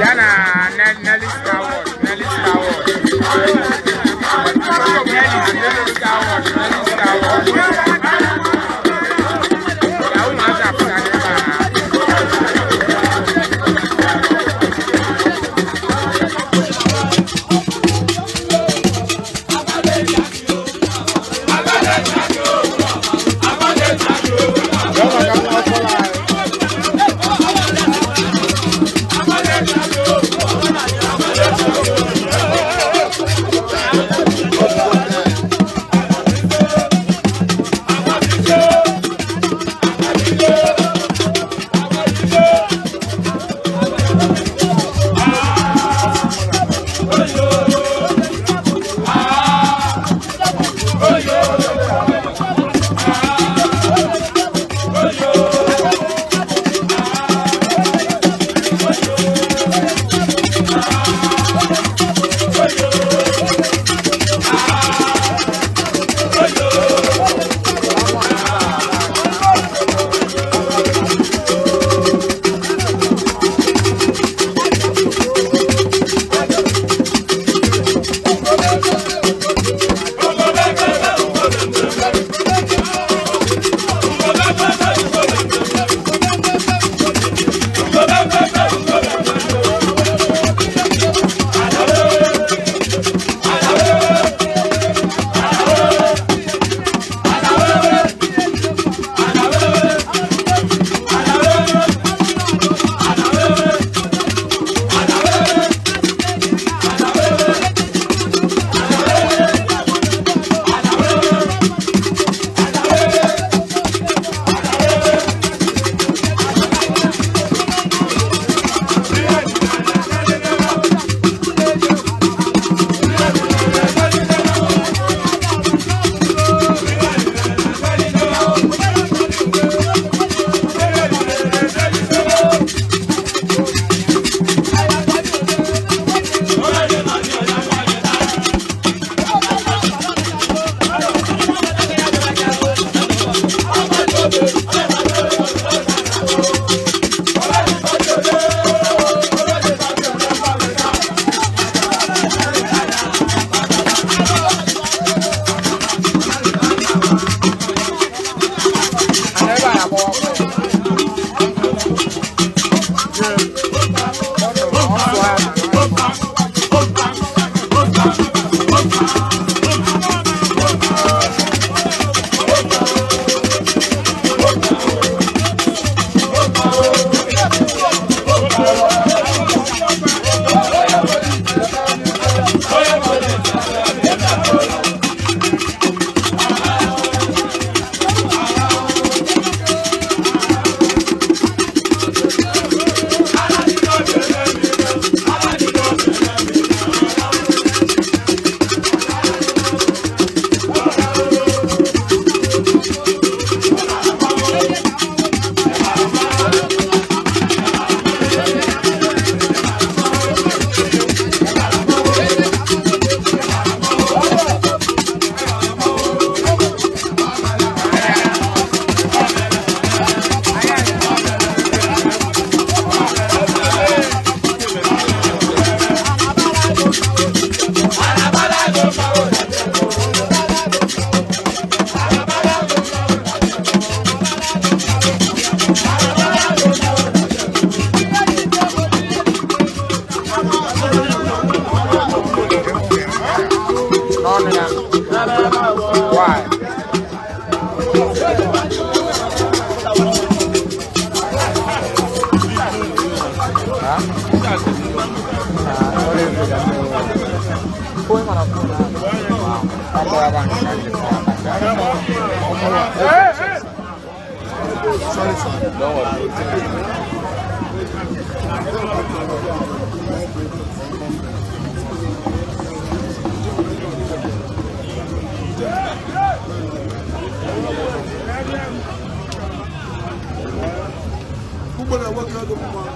yana na Sorry, sorry. Don't work out the woman?